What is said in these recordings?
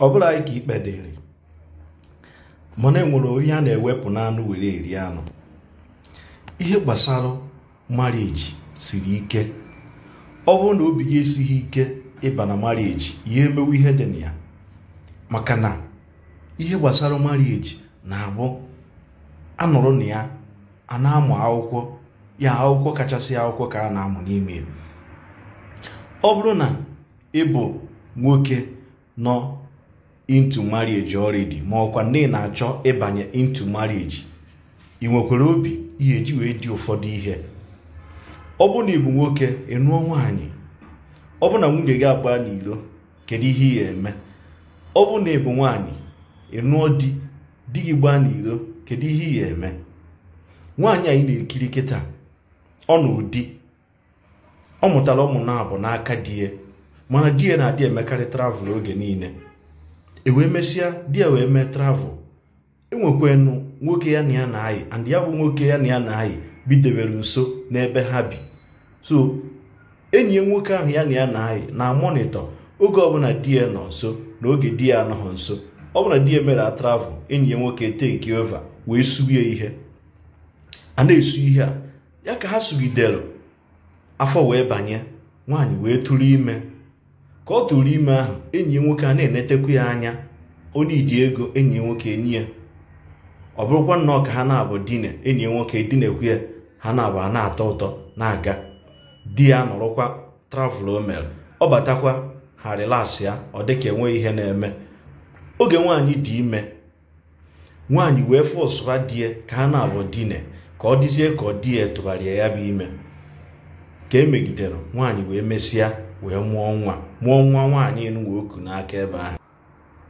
ọ bụla anyị ka ikpe dịrị mana enwere onye a na-ewepụ anụ were eri anụ ihe gbasara marieji siri ike ọ bụrụ na obi gị esighị ike ịba na marieji ya emewe ihe dị na ya maka na ihe gbasara marieji na-abụ anụrụ na ya a na-amụ akwụkwọ ya akwụkwọ kachasị akwụkwọ ka a na-amụ n'ime ọ bụrụ na ịbụ nwoke nọ into marriage already ma ọkwa nne na-achọ ịbanye intu marriage ị nwekwara obi ihe eji wee dị ụfọdụ ihe ọ bụ na ịbụ nwoke ịnụọ nwaanyị ọ bụ na nwunye gị agba n'ilo kedu ihe ị ga-eme ọ bụ na ịbụ nwaanyị ịnụọ di di gị gbaa n'ilo kedu ihe ị ga-eme nwaanyị anyị na-ekiri kịta ọ na ụdị ọ mụtara ụmụ na abụ n'aka di ya e, mana di ya e na-adị emekarị travel oge niile e wee mesịa di ya wee mee travel enwekwanụ nwoke ya na ya na anyị and ya bụ nwoke ya na ya na-ayị bidebere nso n'ebe ha bi so enyi nwoke ahụ ya na ya na anyị na monitọ oge ọbụla di ya nọ nso na oge di ya anọghị nso ọbụla di ya mere a travel enyi ya nwoke take over wee sughe ihe a na-esu ihe a ya ka ha sugidere afọ wee banye nwaanyị wee tụrụ ime ka ọ tụrụ ime ahụ enyi ya nwoke a na-enetekwa ya anya onye iji ego enyi ya nwoke enyi ya ọ bụrụkwa nnọọ ka ha na-abụ dine enyi ya nwoke dinekwu ya ha na-abụ a na-atọ ụtọ na-aga di ya nọrọkwa travel omel ọ batakwa ha rilas ya ọ dịka enweghị ihe na-eme oge nwaanyị dị ime nwaanyị wee fụ ụsụba di ya ka ha na-abụ dine ka ọ dịzie ka ọ di ya tụgharịa ya bụ ime ka emegidere nwaanyị wee mesịa wee mụọ nwa mụọ nwa nwaanyị enuwa oku n'aka ebe ahụ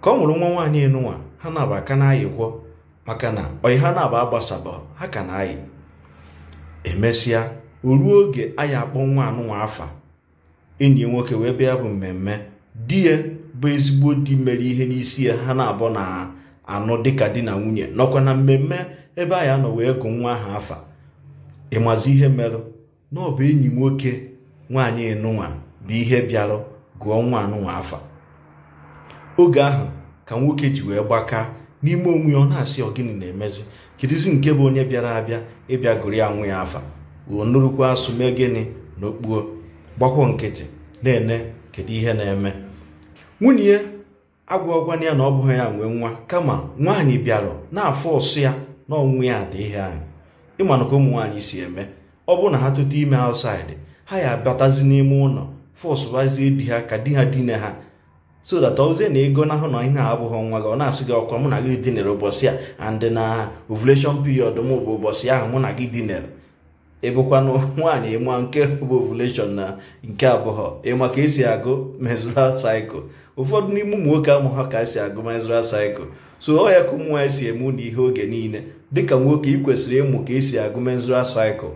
ka ọ nwụrụ nwa nwaanyị enuwa ha na-aba aka na-ayịkwọ maka na ọyị ha na-aba agbasaba ha ka na-ayị emesịa o ruo oge anyị akpọ nwa anụnwa afa enyi nwoke wee bịa bụ mmemme di ya bụ ezigbo di mere ihe n'isi ya ha na-abọ na anụ dịka di na nwunye nọkwa na mmemme ebe anyị anọ wee gụ nwa ahụ afa ịmazi ihe merụ na ọ bụ enyi nwoke nwaanyị enụnwa bụ ihe bịarụ gụọ nwa anụnwa afa oge ahụ ka nwoke ji wee gbaka n'ime onwe ọ na-asị ọ gịnị na-emezi kedụzi nke bụ onye bịara abịa ịbịa gụrụ ya nwa ya afa o nụrụkwa asụ mee gịnị na okpuo gbakwọ nkịtị na-ene kedu ihe na-eme nwunye ya ya na ọ bụghị ya nwee nwa kama nwaanyị bịara na-afọ ọsụ ya na ọnwụ ya dị ihe ahụ ịmanụka ụmụ nwaanyị si eme ọ bụrụ na ha tụta ime outside ha ya abatazi n'ime ụlọ fọsụbazie di ha ka di ha dine ha so that ozie na ego na ahụ na ihe a abụghị nwa gị ọ na-asị gị ọkwa mụ na gị dinere ụbọchị a andị na ovulation period m bụ ụbọchị ahụ mụ na gị dinere ịbụkwanụ nwaanyị ịma nke bụ ovulation na nke abụọ ịma ka esi agụ menstrual cycle ụfọdụ n'ime ụmụ nwoke amụ ha ka esi agụ menstrual cycle so ọ ya ka ụmụ nwaanyị si eme ụlọ ihe oge niile dịka nwoke ị kwesịrị ịmụ ka esi agụ menstrual cycle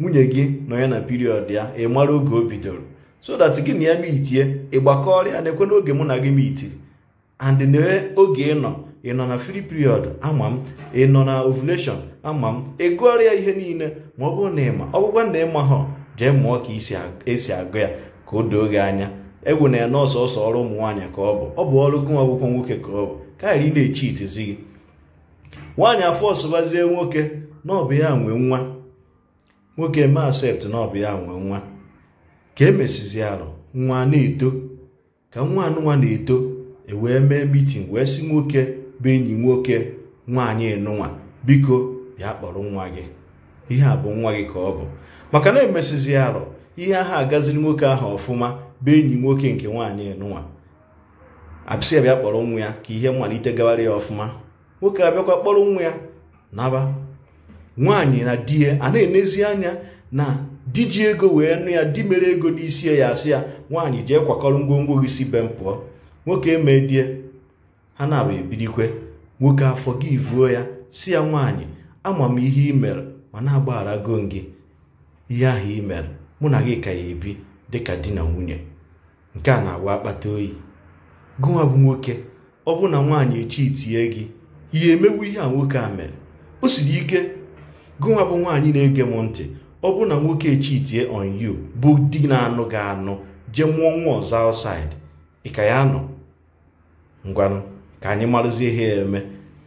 nwunye gị nọ ya na period ya ị mara oge o bidoro so that gị na ya mitie ịgbakọrịa na-ekwe n'oge mụ na gị mitiri and n'oge ị nọ ị nọ na free period ama m ị nọ na ovulation ama m ị ya ihe niile ma ọ bụrụ na ịma ọ bụkwa na ịma ha jee mụọ ka esi agụ ya ka o doo gị anya egwu na ya na ọsọsọ ọrụ ụmụ nwaanyị ka ọ bụ ọ bụ ọrụ gụnwa akwụkwọ nwoke ka ọ bụ karịa ị na-echi itizi gị nwaanyị afọ ọsụbazie nwoke na ọ bụ ya nwe nwa nwoke ma asept na ọ ya nwe nwa ka emesizi arụ nwa na-eto ka nwa nwa na-eto e wee mee mitin wee si nwoke bụ enyi nwoke nwaanyị nụnwa biko bịa kpọrọ nwa gị ihe a bụ nwa gị ka ọ bụ maka na emesizi arụ ihe ahụ agaziri nwoke ahụ ọfụma bụ enyi nwoke nke nwaanyị nụnwa bịa kpọrọ nwa ya ka ihe mmalite gawara ya ọfụma nwoke abịakwa kpọrọ nwa ya naba nwaanyị na di ya a na-enezi anya na di ji ego wee nụ ya di mere ego n'isi ya asị ya nwaanyị jee kwakọrọ ngwongwo gị si be m pụọ nwoke emee die ha na-abụ ebirikwe nwoke afọ gị vuo ya si ya nwaanyị ama m ihe ị mere ma na-agbaghara go gị ihe ahụ ị mere mụ na gị ka ya ebi dịka di na nwunye nke a na-awa akpata oyi gụnwa bụ nwoke ọ bụ na nwaanyị echi itinye gị ihe emewu ihe a nwoke a mere o siri ike gụnwa bụ nwaanyị na-ege m ntị ọ bụrụ na nwoke chitie on you bụ di na-anụ gị anụ jee mụọ nwa ọzọ outside ya nọ ngwanụ ka anyị marụzie ihe ya eme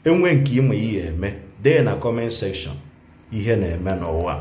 enwe nke ịma ihe eme dee na comment section ihe na-eme n'ụwa